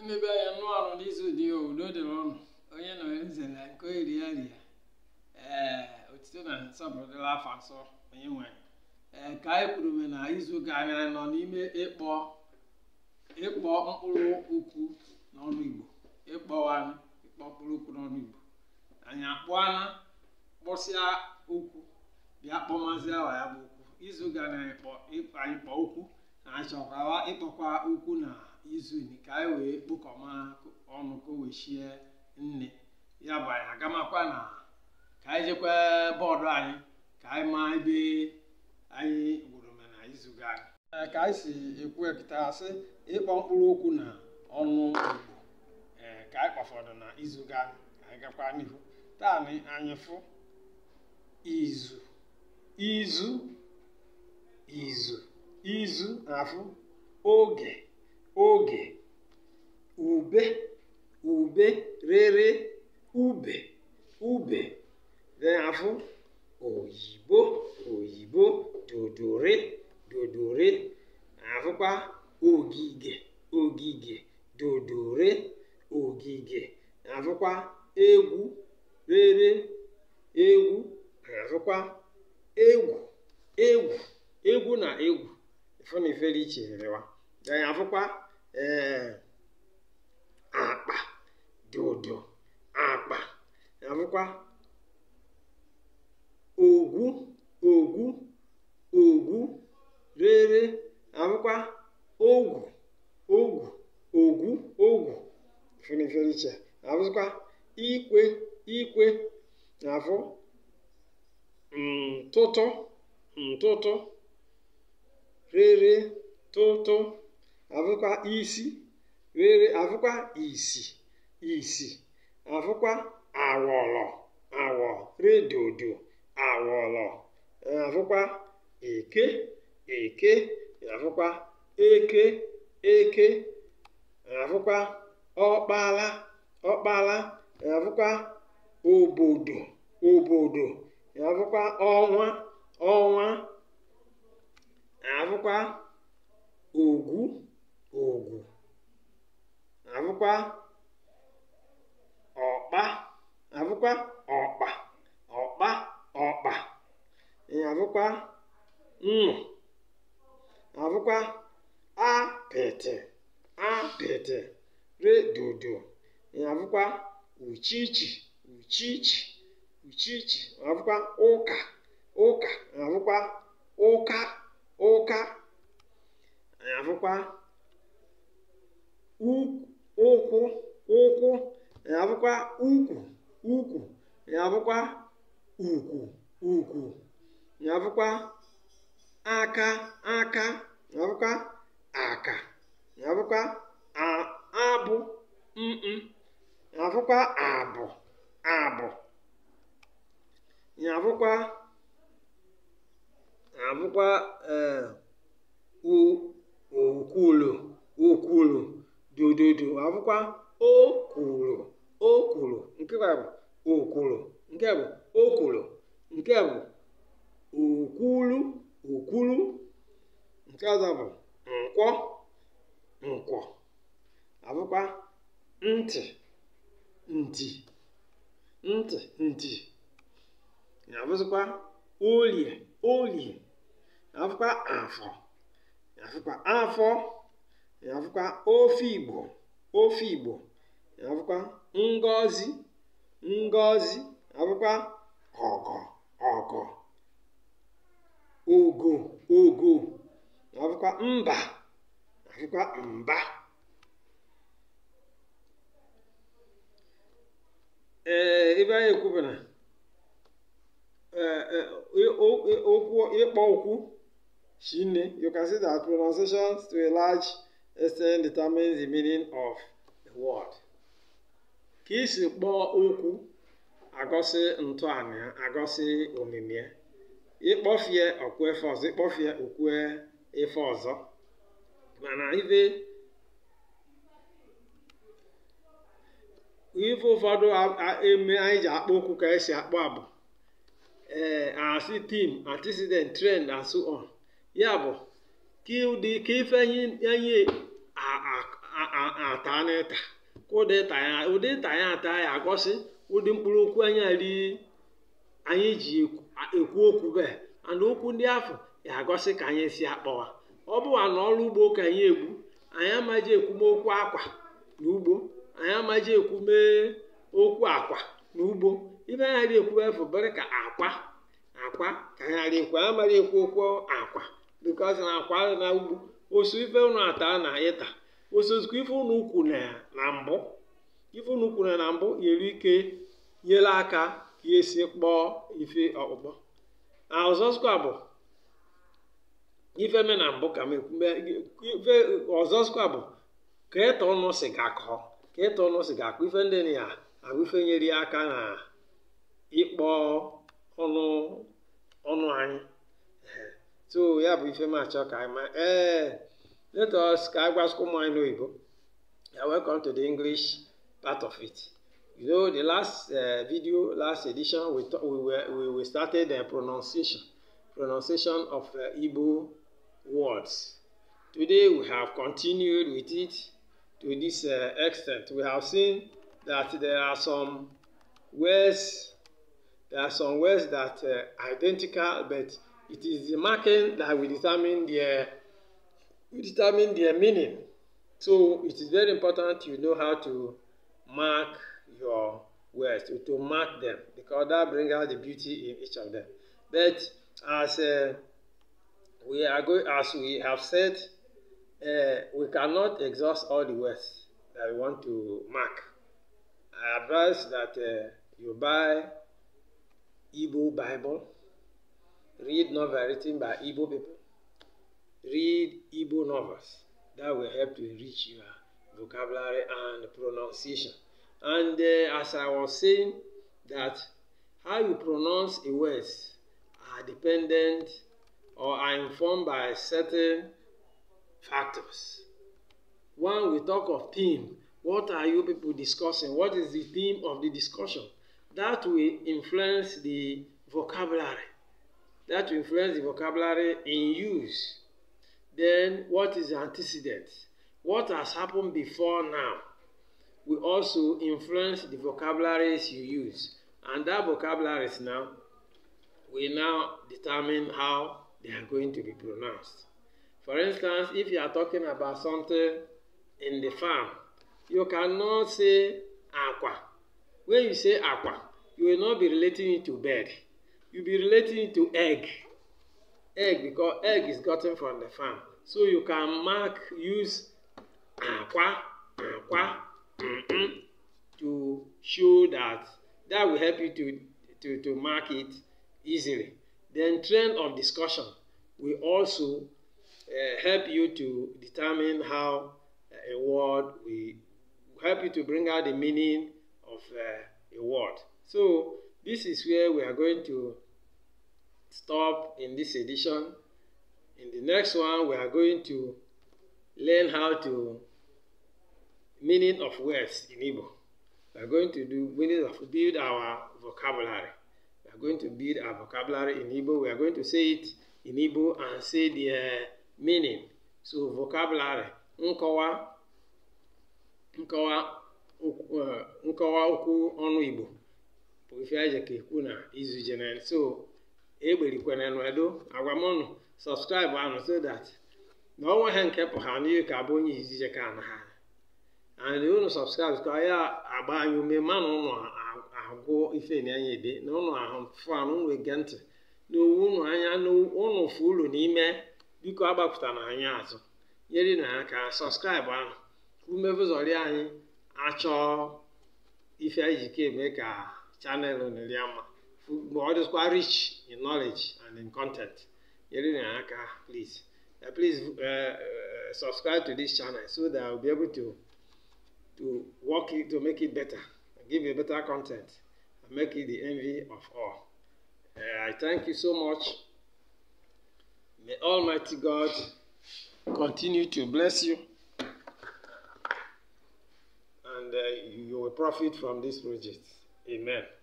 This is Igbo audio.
emebe anya nụ arụ n'izu dị ya udo dịrị ọnụ onye nọ nze na nke eri ya ria ee otito na nsọpụrụ afọ asọ onye nwanyị ee ka anyị kwuru me na izu gara nọ n'ime ịkpọ ịkpọ mkpụrụ okwu n'ọnụ igbo ịkpọwanụ ịkpọ mkpụrụ okwu n'ọnụ igbo anyị akpụana kpọsịa ụkwụ bịa kpọmazịa awa ya bụ okwu izu gara anyị kpọ okwu na achọkwawa ịkpọkwa ụkwụ na izu ka anyị wee kpokọma ọnụ ka o wee nne ya bụ anyị agamakwa na ka anyị jekwa bọọdụ anyị ka anyị maa ebe anyị gwuru me na izu ga ka anyị si ekwu ekita ịkpọ mkpụrụ okwu na ọnụ igbo ka anyị kpafọdụ na izu ga anyị gakwa n'ihu taa na anyị fụ izu izu izu izu na-afụ oge oge ube ube rere ube ube n'afọ oyibo oyibo dodore, dodore, afụkwa ogige ogige dodore, ogige afụkwa egwu rere egwu afụkwa egwu egwu egwu na egwu ifo na iferiche afụkwa ee akpa dị ụdọ akpa afụkwa ogwu ogwu ogwu rere afụkwa abụkwa ogwu ogwu ogwu ogwu ferefere iche ikwe ikwe afụ ntụtụ ntụtụ rere tụtụ avụkwa isi were avụkwa isi isi avụkwa awọlọ awọ redodo awọlọ avụkwa eke eke avụkwa eke eke avụkwa ọkpala ọkpala avụkwa obodo obodo avụkwa ọnwa ọnwa afụkwa ogwu àbụkwa ọ̀kpa abụkwa ọ̀kpa ọ̀kpa ọ̀kpa àbụkwa nnụ àbụkwa apịtị apịtị redodo àbụkwa uchichi uchichi uchichi abụkwa ụka ụka na-abụkwa ụka ụka àbụkwa ukwu ụkwụ ụkwụ ya bụkwa ukwu ukwu ya bụkwa ukwu ukwu ya aka aka ya aka ya abụ mkpụ ya abụ abụ ya bụkwa ya ụkwụ ee eh, okwulu okwulu dododo akwụkwọ o kwuru nke bụ o nke bụ o nke bụ okwulu okwulu nke ọzọ bụ nkwọ nkwọ abụkwa ntị ntị ntị ntị na-abụzikwa olie olie na-abụkwa afọ na afọ afụkwa ofe Igbo ofe Igbo afụkwa ngọzi ngọzi afụkwa ọgọ ọgọ ogo ogo afụkwa mba afụkwa mba ee eh, ebe anyị ekwubara eh, eh, okwu ịkpọ okwu Chineke you can see that pronunciations to a large Essence determines the meaning of a word. Ka isi kpọọ okwu agọsị ntọanya, agosi agọsị omimi ya ịkpọfie okwu efe ọzọ ịkpọfie okwu efe ọzọ mana ife ife ụfọdụ eme anyị ji akpọ okwu ka esi akpọ abụ ee asị tim antecedent trend and so on ya bụ ka ife ka ife anyị ata n'ịta ka ụdị ịta ya ata ya agosi ụdị mkpụrụ okwu anyị ri anyị ji ekwu okwu bee ana okwu ndị afọ ya agọsị ka anyị si akpọwa ọ bụwa na ọrụ ugbo ka anyị egbu anyị amaghị ekwumokwu akwa na ugbo anyị amaghị ekwume okwu akwa na ugbo ibe anyị ghara ekwu efu bere ka akwa akwa ka anyị ghara ekwu anyị amaghị ekwu okwu akwa bikọs na akwa na ugbo osu ife unu ata na ịta osozikwa ife unu ukwu na mbụ ife unu ukwu na mbụ yere ike nyere aka ka esi kpọọ ife ọkpụkpọ na ọzọzikwa bụ ife me na mbụ ka ife ọzọzikwa bụ ka ịta e ọnụ si gakọọ ka ịta e ọnụ si gakọọ ife ndị na ya ife nyere aka na bụ ifema achọ ka anyị ee let us ka a gwasịkwa anyị n'oyibo welcome to the english part of it you know the last uh, video last edition we talk, we were we, we started the eh, pronunciation pronunciation of uh, igbo words today we have continued with it to this uh, extent we have seen that there are some words there are some words that uh, identical but It is the marking that will determine their will determine their meaning. So it is very important you know how to mark your words, to, to mark them, because that brings out the beauty in each of them. But as uh, we are going, as we have said, uh, we cannot exhaust all the words that we want to mark. I advise that uh, you buy Igbo Bible Read novels written by Igbo people. Read Igbo novels. That will help to enrich your vocabulary and pronunciation. And uh, as I was saying, that how you pronounce a word are dependent or are informed by certain factors. When we talk of theme, what are you people discussing? What is the theme of the discussion? That will influence the vocabulary that will influence the vocabulary in use. Then, what is the antecedent? What has happened before now will also influence the vocabularies you use. And that vocabularies now will now determine how they are going to be pronounced. For instance, if you are talking about something in the farm, you cannot say aqua. When you say aqua, you will not be relating it to bed you be relating to egg egg because egg is gotten from the farm so you can mark use akwa akwa to show that that will help you to to to mark it easily then trend of discussion will also uh, help you to determine how eh, a word will help you to bring out the meaning of uh, a word so This is where we are going to stop in this edition. In the next one, we are going to learn how to meaning of words in Igbo. We are going to do meaning of build our vocabulary. We are going to build our vocabulary in Igbo. We are going to say it in Igbo and say the uh, meaning. So vocabulary, nkọwa, nkọwa, uh, nkọwa okwu ọnụ Igbo. ife aja ka na izu jenen so egberikwere n'edo agwa m ụnụ sọpskraibụ anụ so dat na ọnwa ha nke pụ ha n'ihe ka bụ onye izije ka na ha and ụnụ sọpskraibụ ka ya agba anyị ume mana ụnụ agwụ ife na anya na ụnụ ahụ fụ ụnụ ege ntị n'owu ụnụ anya n'ụnụ fụ ụlụ n'ime biko agbapụta na anyị azụ nyere na aka sọpskraibụ ahụ umevụzọri anyị achọọ ife anyị ji ka ka channel on Eliama. What is quite rich in knowledge and in content. Please, uh, please uh, uh, subscribe to this channel so that I'll be able to to work it to make it better, give you better content, and make it the envy of all. Uh, I thank you so much. May Almighty God continue to bless you and uh, you will profit from this project. Amen